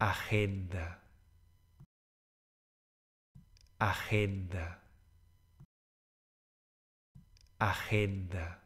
agenda, agenda, agenda.